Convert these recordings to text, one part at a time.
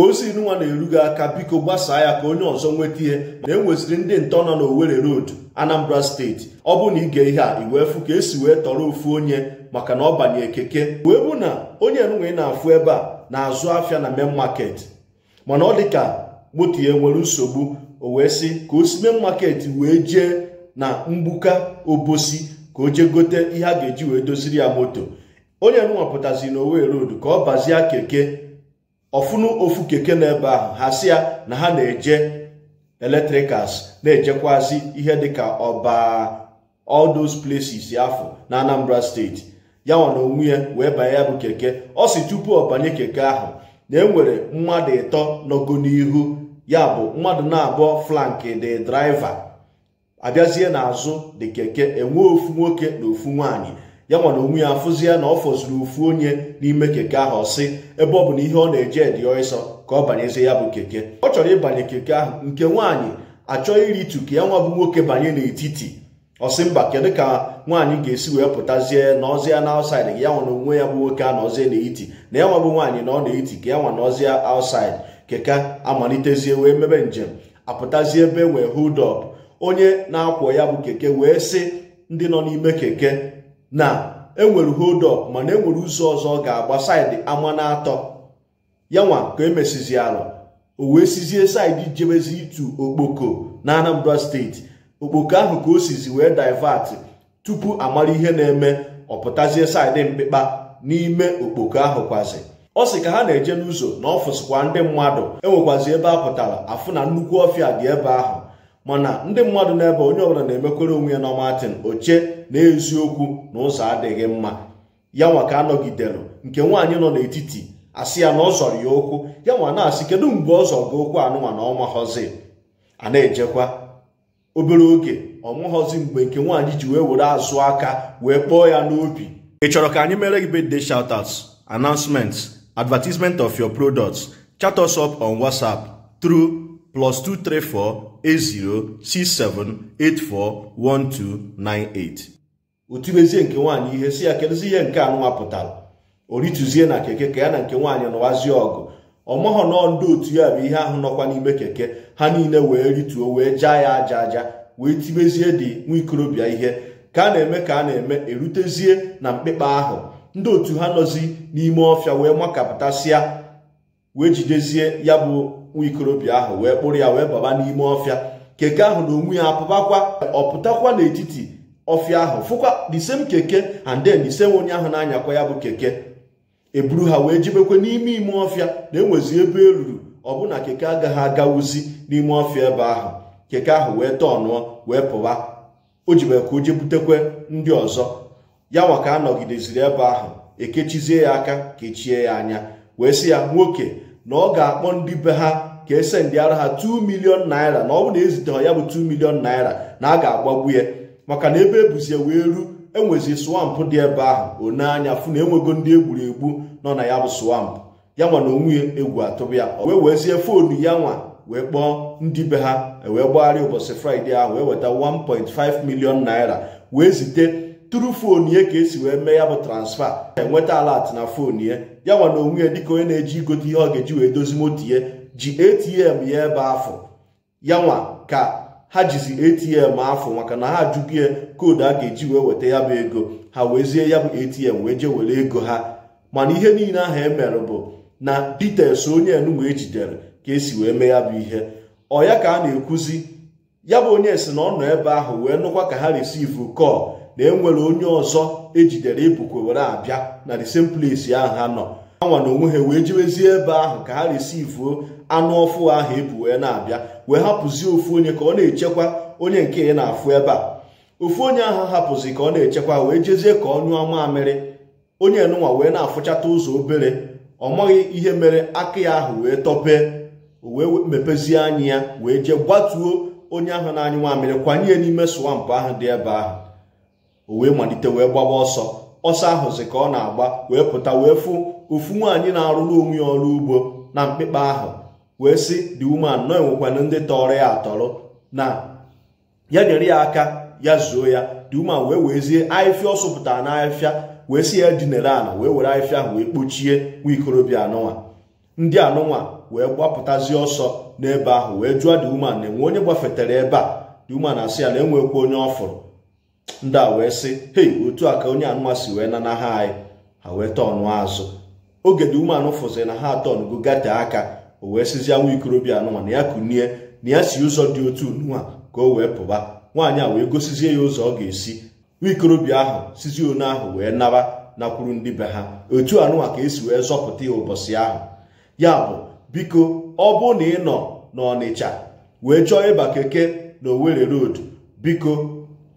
ka ozi nwa na-erughị aka biko gbasaa ya ka onye ọzọ nweta ihe na enweziri ndị ntọ nọ n'Owerri Road Anambra steeti ọ bụ na ige ihe a iwee ka esi wee tọrọ ofu onye maka na ọ banye keke wee bụ na onye ị na-afụ ebe a na-azụ afịa na main maket mana ọ dịka moto ya nwere nsogbu o wee sị ka o si main wee jee na mgbuka obosi ka o jee gote ihe a ga-eji wee doziri ya moto onye enwe pụtazi na Owerri Road ka ọ bazie keke ọfụnụ ofu keke na ebe ahụ ha si ya na ha na-eje eletrikals na-ejekwazi ihe dịka ọba all those places afọ na Anambra steeti ya nwa na onwe wee banye ya bụ keke ọ si tupu ọ banye keke ahụ na enwere mmadụ ịtọ n'ogo n'ihu ya bụ mmadụ na-abụọ flanki dị draiva abịazie n'azụ dị keke enwe ofu nwoke na ofu nwaanyị ya nwana onwe ya afụzi ya na ọ fọzuru ofu onye n'ime keke ahụ ọsị ebe ọ bụ na ihe ọ na-eje dị ọsọ ka ọ banyezie ya bụ keke ọ chọrọ ịbanye keke ahụ nke nwaanyị iri iritu ka ya nwa bụ nwoke banye n'etiti ọsị mba kedu ka nwaanyị ga-esi wee pụtazie na ọzịa na ausaid ya nwana onwe ya bụ nwoke a na ọzie n'eti na ya nwa bụ nwaanyị na ọ na-eti ka ya nwa na ausaid keke amalitezie wee mebe njem apụtazie ebe e wee hold up onye na-akwọ ya bụ keke wee sị ndị nọ n'ime keke na enwere hold up mana enwere ụzọ ọzọ ọ ga-agba saịdị ama na atọ yanwa ka emesizi ala o wee sizie saịdị jebezi ịtụ okpoko na anambra steeti okpoko ahụ ka o sizi wee divert tupu amara ihe na-eme ọpụtazie saịdị mkpịkpa n'ime okpoko ahụ kwazi ọ sị ka ha na-eje n'ụzọ na ọfịs ndị mmadụ enwekwazi ebe a pụtara afụ na nnukwu ọfịa dị ebe ahụ mana ndị mmadụ n'ebe onye ọbụla na-emekwere onwe ya na Martin oche na eziokwu na ụzọ adịghị mma ya nwa ka anọgidere nke nwaanyị nọ n'etiti asị ya na ọ zọrọ ya okwu ya nwa na-asị kedu mgbe ọ zọrọ gị okwu anụnwa na ọnwa họzi a na-ejekwa obere oge ọnwahọzi mgbe nke nwaanyị ji wee were azụ aka wee kpọọ ya n'obi ị chọrọ ka anyị mere gị bede shoutouts announcements advertisement of your products chat us up on WhatsApp through +2348067841298 otubezie nke nwaanyị ihe si ya kedụzi ihe nke nwa pụtara o rituzie na keke ka ya na nke nwaanyị nụwazie ọgụ ọmọghọ nọọ ndị otu ya bụ ihe ahụ nọkwa n'ime keke ha niile wee rituo wee jaa ya aja aja wee tibezie dị nwa ikorobịa ihe ka a na-eme ka a na-eme erutezie na mkpịkpa ahụ ndị otu ha nọzi n'ime ọfịa wee makapụtasịa wee jidezie ya bụ nwa ikorobịa ahụ wee kpụrụ ya wee baba n'ime ọfịa keke ahụ na onwe ya apụbakwa ọpụtakwa n'etiti ọfịa ahụ fụkwa the same keke and then the onye ahụ na-anyakwa ya bụ keke eburu ha wee jebekwe n'ime ime ọfịa na enwezi ebe eruru ọbụna keke agaghị agawuzi n'ime ọfịa ebe ahụ keke ahụ wee tọnụọ wee pụwa o jibekwa o butekwe ndị ọzọ ya nwa ka a nọgideziri ebe ahụ ekechizie ya aka kechie ya anya wee si ya nwoke na ọ ga-akpọ ndị be ha ka ese ndị ara ha 2 milion naira na ọ bụ na eziteghị ya bụ 2 milion naira na a ga-agbagbu ya maka na ebe ebuzie wee ru enwezi swamp dị ebe ahụ one anya fụ na enwego ndị egburu egbu nọ na ya bụ swampụ ya nwa na onwe egwu atụbụ ya wee wezie foonu ya nwa wee kpọọ ndị be ha e wee gbagharịa ụbọchị fraịde ahụ wee weta 1.5 milion naira wee zite turu foonu ya ka esi wee mee ya bụ transfa enweta alat na foonu ya ya nwa na onwe ya dịka onye na-eji igote ihe ọ ga-eji wee dozi moto ya ji atm ya ebe afọ ya nwa ka ha jizi atm afọ maka na ha ajụghị ya koodu a ga-eji wee weta ya bụ ego ha wee zie ya bụ atm wee jee were ego ha mana ihe niile ahụ e mere bụ na details onye enugwu ejidere ka esi wee mee ya bụ ihe ọ ya ka a na-ekwuzi ya bụ onye si na ọ nọ ebe ahụ wee nụkwa ka ha resivu kọl na enwere onye ọzọ ejidere ibukwe were abịa na the same place ahụ ha nọ ha nwa na onwe ha wee jewezie ebe ahụ ka ha resivuo anụ ọfụ ahụ ebu wee na-abịa wee hapụzie ofu onye ka ọ na-echekwa onye nke ya na-afụ ebe a ofu onye ahụ hapụzi ka ọ na-echekwa wee jezie ka ọ nyụọ mamịrị onye nụnwa wee na-afụchata ụzọ obere ọ maghị ihe mere aka ya ahụ wee tọpee wee mepezie anya ya wee jee gbatuo onye ahụ na-anyụ nwamịrị kwanye n'ime swampụ ahụ dị ebe ahụ o wee malite wee gbaba ọsọ ọsọ ahụzi ka ọ na-agba wee pụta wee fụ ofu nwaanyị na-arụrụ onwe ya ọrụ ugbo na mkpịkpa ahụ wee sị dị woman nọ enwekwana ndị tọrọ ya atọrọ na ya nyere ya aka ya zuo ya dị woman wee wezie ahịfịa ọ sụpụtara n'ahịfịa wee sị ya dinere ala wee were ahịfịa ahụ wee kpochie nwa ikorobịa anụnwa ndị anụnwa wee gbapụtazie ọsọ n'ebe ahụ wee jụọ dị woman na enwe onye gbafetara ebe a dị na asị ya na enwekwa onye ọ fụrụ ndị a wee sị hei otu a ka onye anụnwa si wee nana ha anyị ha wee tọnụ azụ ogede umeanụ fụziri na ha atọnugo gate aka o wee sizie nwa ikorobịa anụnwa na ya kunie na ya si ụzọ dị otu nwa ka o wee pụba nwaanyị a wee gosizie ya ụzọ ọ ga-esi nwikorobịa ahụ sizie onu ahụ wee naba nakwuru ndị be ha otu anụnwa ka esi wee zọpụta ya ụbọchị ahụ ya bụ biko ọ bụ na ị nọ n'ọnịcha wee chọọ ịba keke na owere road biko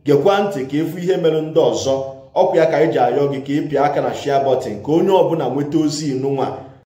gekwa ntị ka efu ihe mere ndị ọzọ ọkwa ya ka anyị e ji ayọ gị ka ịpịa aka na shia ka onye ọbụla nweta ozi inu nwa